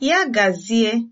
Ya gazie